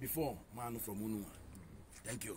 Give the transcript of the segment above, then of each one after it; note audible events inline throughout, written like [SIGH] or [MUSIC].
before man from Unua. Thank you.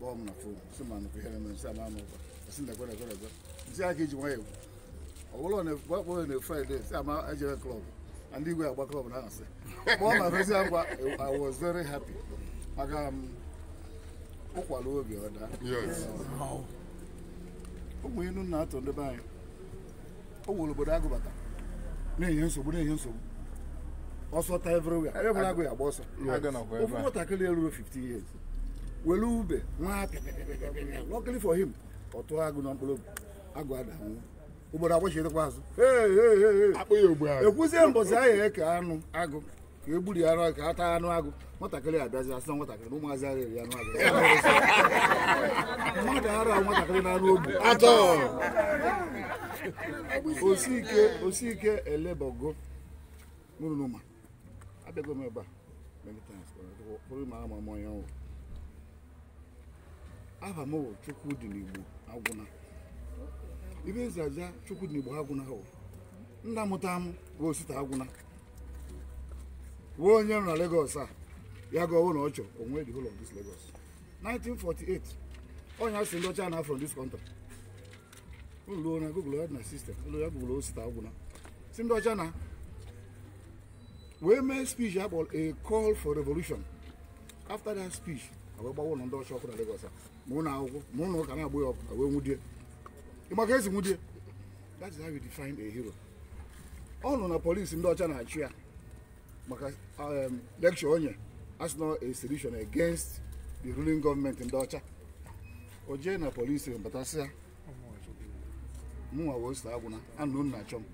kpọọ na fon si ma ihe na nsị ama anụkwa nsị nekwe nekwe nekwe nsị aka iji nwayọ ekwu na fraịde sị ama klọb ndị igwe agba klọb na asị kpọọ ma fesi agwa i was very happy aga m ụkwara obi ọda ụmụ inu na-atọ o everywhere ụmụ were ube nwa luckily for him ọ agụ na mkpụrụ agụ adanwụ ugboro agbachiedekwa azụ ekwuzie mbọsị ahịa eke anụ agụ ka e gburu ya ka a anụ agụ nwatakịrị abịazi asị na nwatakịrị na ụmụazị ahụ eri anụ agụ [LAUGHS] mmadụ ara nwatakịrị na anụ ogbu atọ osike osike elebogo nụrụnụma abịago m ebe a many times, but I Aba m bụ dị n'Igbo Agwụna ibe ezi Chukwu dị n'Igbo Agwụna hụ nna mụta m bụ Osita Agwụna wee onye nọ na Lagos a ya ga ọwụ na ọ chọ onwe dị ụlọ of this Lagos 1948 onye asị ndị ọcha na from this country ụlọ na Google ya na system ụlọ ya Google Osita Agwụna si ndị ọcha na wee mee speech akpọrọ a call for revolution after that speech wee gbawa ụlọ ndị ọcha ọkụ na Lagos ma ụlọ akwụkwọ ma ụlọ ụka na-agbụ ya ọkụ na wee nwudie ịma ka esi nwudie that is how you define a hero ọ nọ na polisi ndị ọcha na-achụ ya maka um, lecture onye as a solution against the ruling government ndị ọcha o jee na polisi batasị ya mụnwa wee so agwụna anụ nna achọ m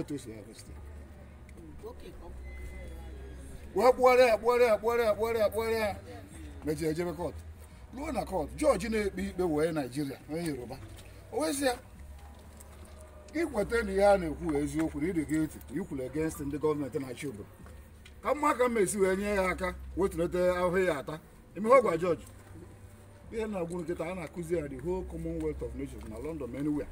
etu esi ya gosi wee kpụgharịa ya kpụgharịa ya kpụgharịa ya kpụgharịa ya mejiri ejebe kọt ruo na kọt jọji na-ekpe ikpe wee naijiria onye yoruba owezi ya ikweta na ihe a na-ekwu eziokwu na ịdị gị ntị ikwuru ndị gọọmenti na-achị obodo ka mma ka mma esi wee nye ya aka wetulite ahụhụ ya ata emeghe ọgwa jọji ihe na-agwụ nkịta a na-akụzi ya the whole commonwealth of nations na london anywhere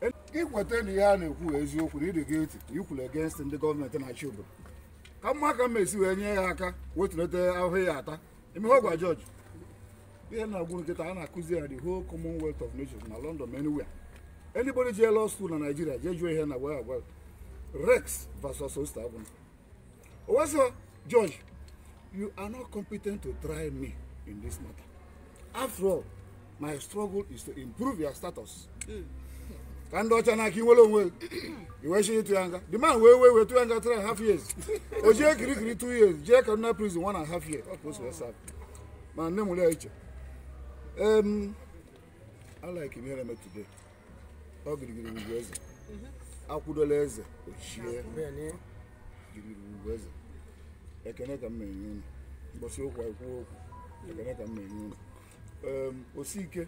e, ikweta na ihe a na-ekwu eziokwu na ịdị gị ntị ikwuru egenst ndị gọọmenti na-achị obodo ka mma ka mma esi wee nye ya aka wetulite ahụhụ ya ata ime ihe ọgwa George ihe na-agwụ nkịta a na-akụzi ya the whole commonwealth of nations na london anywhere anybody jee law school na Nigeria? jee join here, na wee agwa rex versus osta agwụ owesọ George you are not competent to try me in this matter after all my struggle is to improve your status mm. ka ndị ọcha n'aka inwere onwe iwe iwechi ịtụ ya nga the man wee wee wee tụ ya nga three and half years o jee kirikiri two years jie kaduna prison one and half year ọ ka o si wee saa nne nwere ya iche em I like ihe na-eme today ọ girigiri ugwu eze mhm. akwụdola eze ochie girigiri ugwu eze ekene ka m na-enye unu mgbọsi okwu ekwu okwu ekene ka m na-enye unu osike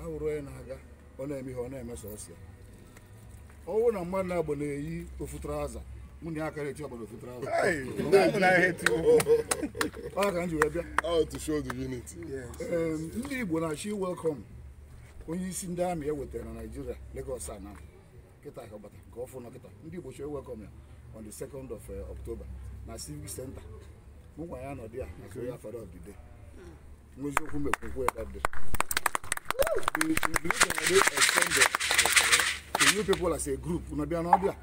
ahụrụ onye na-aga ọ na-eme ihe ọ na-eme sọsọ ọ na mmadụ na-agba na-eyi ofu traza mụ na aka na-eti ọgbara ofu ọ ka m ji wee bịa ndị Igbo na-achọ welcome onye isi ndị amị e wetara na naijiria Lagos ana kịta ka bata nke ọfụ nọ kịta ndị Igbo chọrọ welcome ya on the 2nd eh, October na Civic Center mụ gwa ya nọdụ hmm. ya na Korea Father of the Day nweziokwu mekwukwe ya you believe that they extend the, you people as a group na bịa n'ọbịa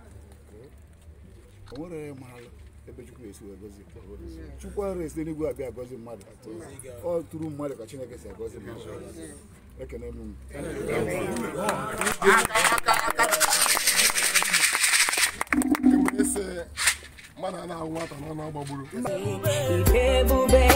o nwere ebe chukwu esi wee gozi chukwu esi n'igwe abịa gozi mmadụ ọ tụrụ mmadụ ka chineke si gozi mmadụ ekene na-ahụ nwata na